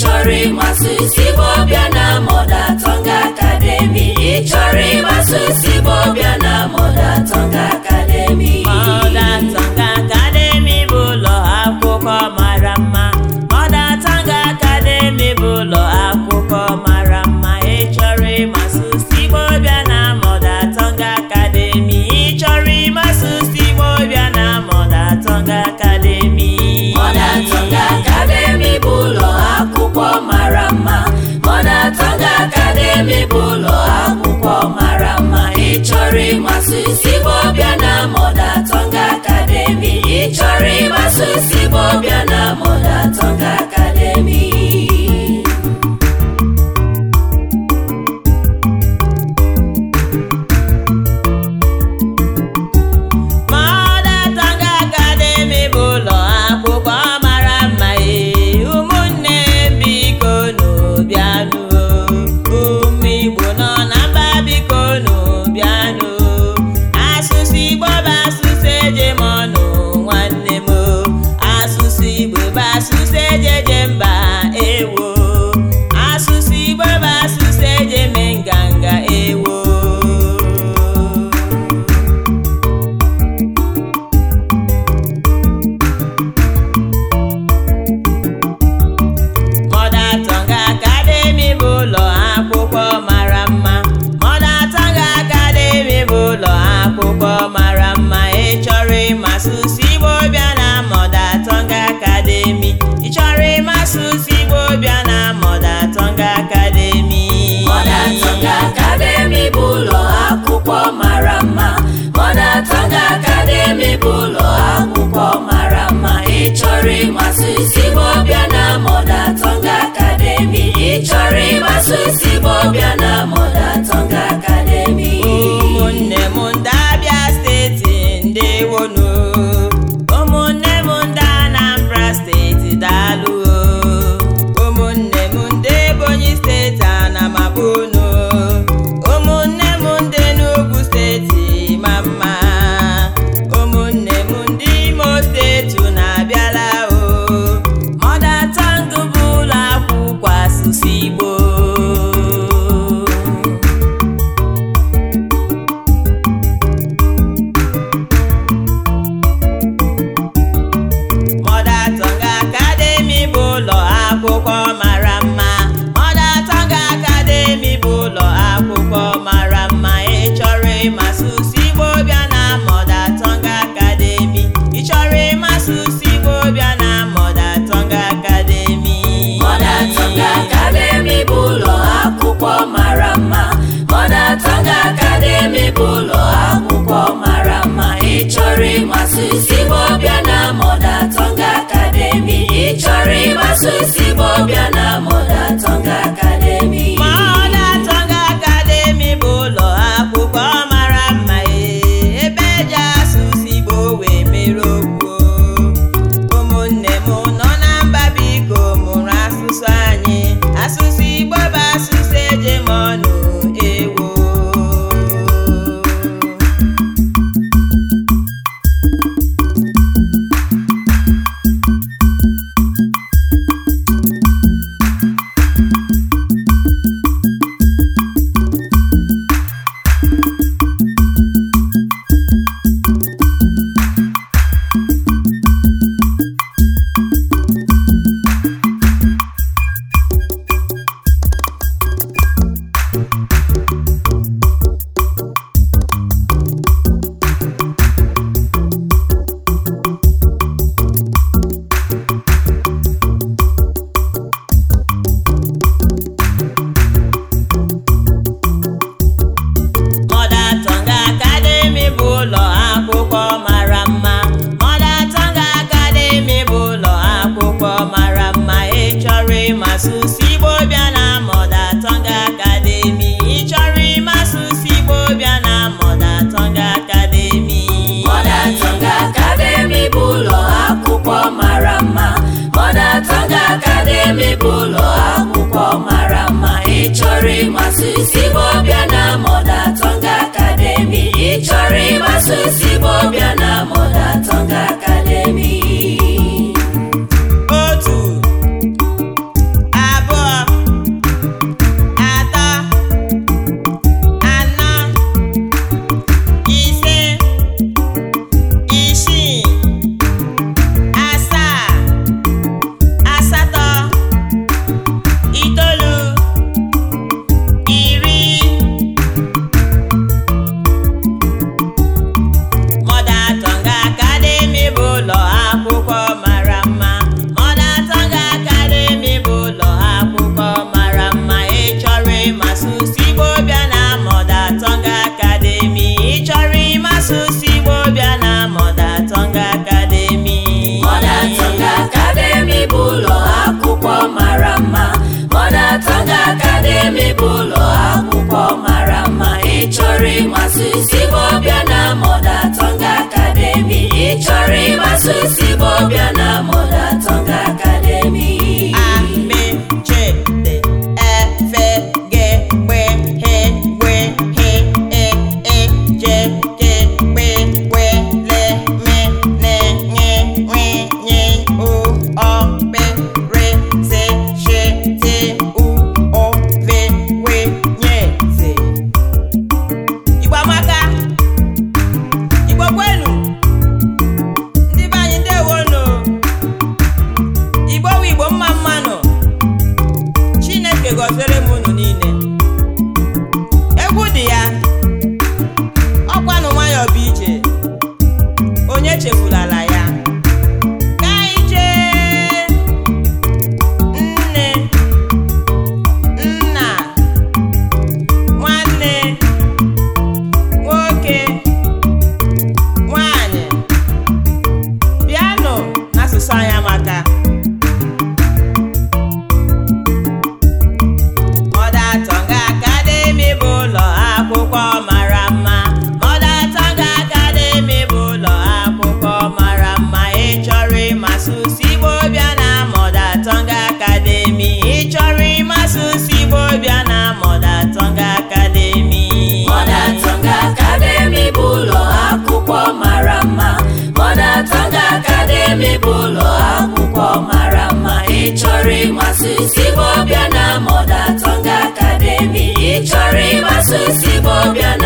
chọrọ ịmasụ Igbo bịa na moda Tongue Academy ịchọrọ ịmasụ Igbo bịa na Igbo mara mma ịchọrọ ịmasụ isi Igbo bịa na Mother Tongue Academy ịchọrọ ịmasụ isi Igbo bịa na Mother Tongue Academy akwụkwọ mara mma Mother bụ ụlọ akwụkwọ mara mma ị chọrọ ịmasụ ụsụ Igbo bịa na Mother akademi. ị chọrọ ịmasụ ụsụ Igbo bịa na Mother Academy Mother Academy bụ ụlọ akwụkwọ mara mma Academy bụ ụlọ akwụkwọ mara mma ị chọrọ ịmasụ ụsụ chọrọ ịgbaso isi bụ ọbịa na mụda ị chọrọ ịgbaso ezigbo ọbịa na mọdata chọrọ ịgbaso isi bụ ọbịa na mụ echefula chọrọ ịgbasa osi bụ ọbịa na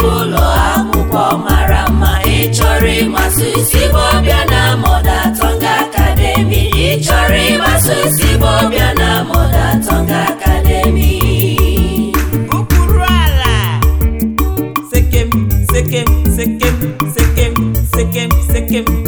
bụ ụlọ akwụkwọ mara mma ịchọrọ ịmasụ Igbo na Mother Tongue Academy ịchọrọ ịmasụ Igbo na Mother Tongue Academy okpuru ala sekem sekem sekem sekem sekem sekem